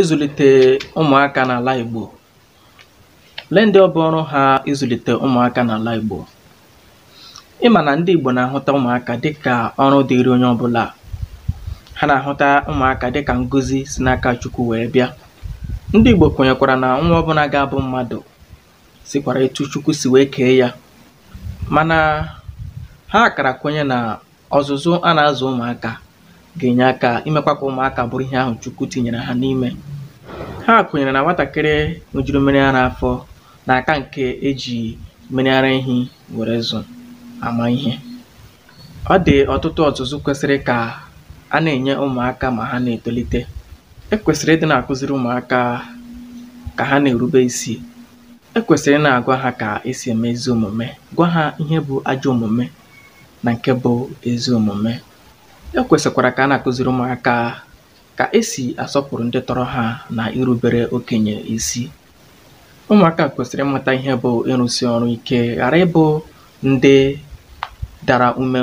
ịzụ̀lìtè ụmụ̀akā n'àla Ìgbò lee ndị ọ bụ ọrụ ha ịzụ̀lìtè ụmụaka n'àla Ìgbò ị mà nà ndị Ìgbò nà-àhụta ụmụaka dịkà ọrụ dịịrị onye ọbụ̄là ha nà-àhụta ụmụaka dịkà ngozi si n'aka Chukwu wèe bịa ndị Ìgbò kwènyèkwàrà nà nwa ọbụnā ga-abụ mmadụ̀ sikwara etu Chukwu si wee kee ya mana ha kara kwenye na ọzụzụ a na-azụ ụmụaka. ga-enye aka imekwa ka ụmụaka bụrụ ihe ahụ Chukwu tinyere ha n'ime ha kwenyere na nwatakịrị ṅụjuru mmiri ara afọ na-aka nke eji mmiri ara ehi were zụ ama ihe ọ dị ọtụtụ ọzụzụ kwesịrị ka a na-enye ụmụaka ma ha na-etolite ekwesịrị ịdị na-akụziri ụmụaka ka ha na-erube isi ekwesịrị na-agwa ha ka esi eme ezi omume gwa ha ihe bụ ajọ omume na nke bụ ezi omume e kwèsị̀kwàrà kà a na àkụziri ụmụaka ka esi asọpụrụ ndị tọrọ ha na irubere okenye isi Ụmụaka kwesịrị ịmata ihe bụ ịrụsi ọrụ ike ghara ịbụ ndị dara ume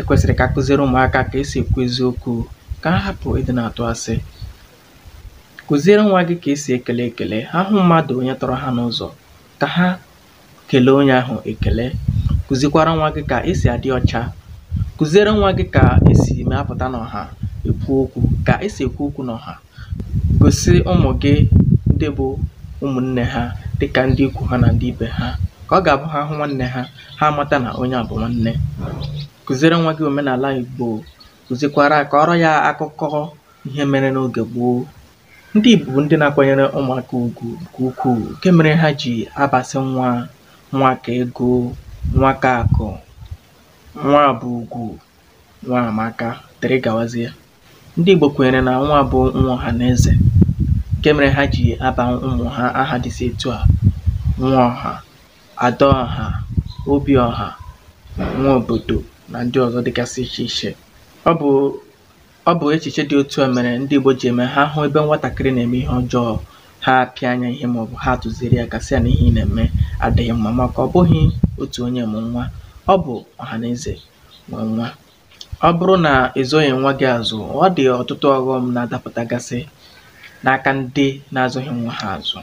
ekwesịrị ka kwèsị̀rị̀ ụmụaka ka ụmụ̀akā kà esì èkwu eziokwū kà ha hapụ ịdị na atụ asị kụziere nwa gị ka esi ekele ekele, ha hụ mmadụ onye tọrọ ha n'ụzọ ka ha kelee onye ahụ ekele. Kụzikwara nwa gị ka esi adị ọcha kụziere nwa gị ka esi ma n'ọha ekwu okwu ka esi ekwu okwu n'ọha gosi ụmụ gị ndị bụ ụmụnne ha dịka ndị ikwu ha na ndị ibe ha ka ọ ga-abụ ha hụ nwanne ha ha amata na onye à nwanne kụziere nwa gị omenala igbo kụzikwara ọrọ ya akụkọ ihe mere n'oge gboo ndị Igbo bụ ndị na-akwanyere ụmụaka ugwu nke ukwuu nke mere ha ji abasị nwa nwa ka ego nwa ka akụ nwa bụ ùgwù Nwaamaka dịrị gawazie ndị Igbo kwenyere na nwa bụ nwa ọha na eze nke mere ha ji aba ụmụ ha aha dịsị etu a nwa ọha ada ọha obi ọha nwa obodo na ndị ọzọ dịgasị iche iche ọ bụ ọ bụ echiche dị otu a mere ndị Igbo ji eme ha hụ ebe nwatakịrị na-eme ihe ọjọọ ha apịa anya ihe maọbụ ha tụziere ya gasị a na ihe ị na-eme adịghị mma maka ọ bụghị otu onye mụ nwa ọ bụ ọ̀hànàezè nwe nwa. Ọ bụrụ na ịzụghị nwa gị azụ ọ dị ọtụtụ ọghọm na adapụtagasị n'aka ndị na-azụghị nwa ha azụ.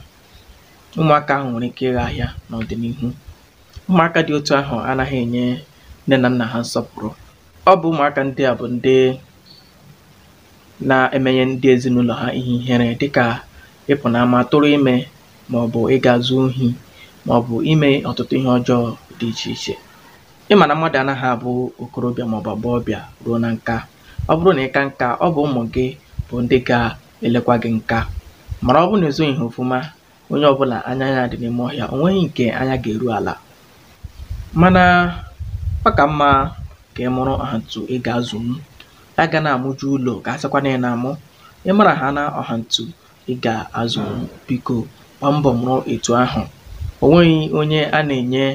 ụmụaka ahụ nwere ike ịghọ ahịa n'ọdịnihu ụmụaka dị otu ahụ anaghị enye nne na nna ha nsọpụrụ. Ọ bụ ụmụaka ndị a bụ ndị na-emenye ndị ezinụlọ ha ihe ihere dịkà ịpụ̀ n'ama tụrụ ime maọbụ ịga zuo ohi maọbụ ime ọtụtụ ihe ọjọọ dị iche iche. ị mà nà mmadụ̀ anaghị àbụ òkorobịà màọbụ̀ àgbọghọbịà ruo na nka ọ bụrụ na ị ka nka ọ bụ ụmụ gị bụ ndị ga-elekwa gị nka mara ọ bụrụ na ezoghị ha ofuma onye bụla anya ya dị n'ime ọhịa o nweghị nke anya ga eru ala. mana ọ ka mma ka ị mụrụ ọ̀hàǹtụ ị mụ ya ga na amụju ụlọ kà asịkwa na ị na amụ ị mara ha na ọ̀hàǹtụ ị gà-azụ̀nwu biko gbaa mbọ mụrụ etu ahụ o nweghị onye a na-enye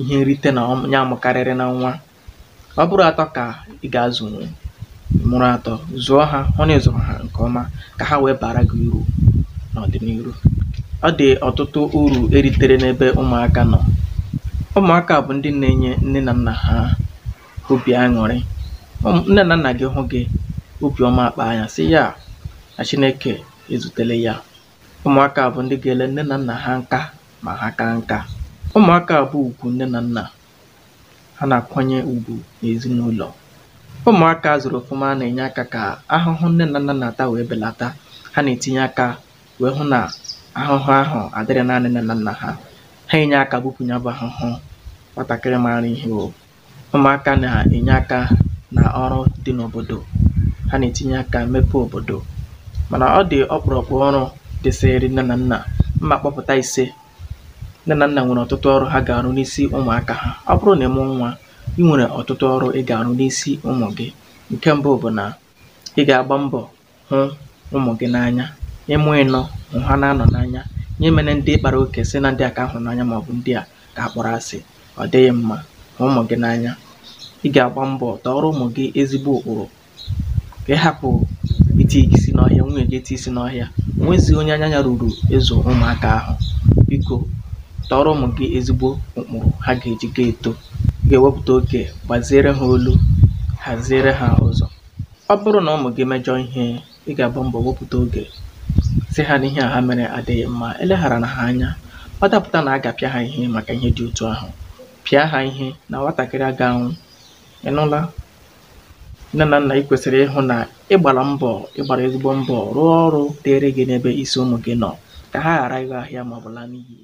ihe nrite na ya mụ̀karịrị na nwa ọ bụrụ atọ ka ị ga azụ̀nwu mụrụ atọ zụọ ha hụ na ịzụ̀rụ̀ ha nke ọma ka ha wee bara gị uru n'ọdịnihu ọ dị ọtụtụ uru eritere n'ebe ụmụaka nọ ụmụaka bụ ndị na-enye nne na nna ha obi aṅụrị nne na nna gị hụ gị obiọma ọma anya si sị ya na Chineke ezutele ya ụmụaka bụ ndị ga-ele nne na nna ha nka ma ha kaa nka ụmụaka bụ ùgwù nne na nna ha na-akwanye ugwu n'ezinụlọ ụmụaka a zụ̀rụ̀ na-enye aka ka ahụhụ nne na nna na-ata wee belata ha na-etinye aka wee hụ na ahụhụ ahụ adịrị naanị nne na nna ha ha enye aka bupù ya ahụhụ nwatakịrị maara ihe o ụmụaka na-enye aka na ọrụ dị n'obodo ha na-etinye aka mepe obodo mana ọ dị ọkpụ̀rụ̀kpụ̀ ọrụ dịsịrị nne na nna mma kpọpụta ise nne na nna nwere ọtụtụ ọrụ ha ga-arụ n'isi ụmụaka ha ọ bụrụ na ị nwa nwā i nwèrè ọ̀tụtụ ị ga-arụ n'isi ụmụ gị nke mbụ bụ na ị ga-agba mbọ hụ ụmụ gị n'anya ịmụ ịnọ ị̄nọ̄ ha na anọ n'anya nye emenē ndị kpara oke si na ndị aka ahụ a n'anya màọ̀bụ̀ ndị a ka a kpọrọ asị ọ dịghị mma hụ ụmụ gị n'anya ị ga-agba mbọ tọọrọ ụmụ gị ezigbo ụkpụrụ ka ị hapụ itīī isi n'ọhịa nwunyè gị isi n'ọhịa ò onye anya ya ruru ịzụ ụmụaka ahụ biko tọọrọ ụmụ gị ezigbo ụkpụrụ ha ga-eji ga-eto ga-ewepụta oge gbaziere ha olu haziere ha ụzọ ọ bụrụ na ụmụ gị mejọọ ihe ị ga-agba mbọ wepụta oge sị ha n'ihe a ha mere adịghị mma eleghara na ha anya ọ dapụta na a ga-apịa ha ihe maka ihe dị otu ahụ pịa ha ihe na nwatakịrị aga anwụ ịnụla nne na nna ị kwesịrị ịhụ na ịgbara mbọ ịgbara ezigbo mbọ rụọ ọrụ dịịrị gị n'ebe isi ụmụ gị nọ ka ha ghara ịgha ahịa ma ọ laa n'iyi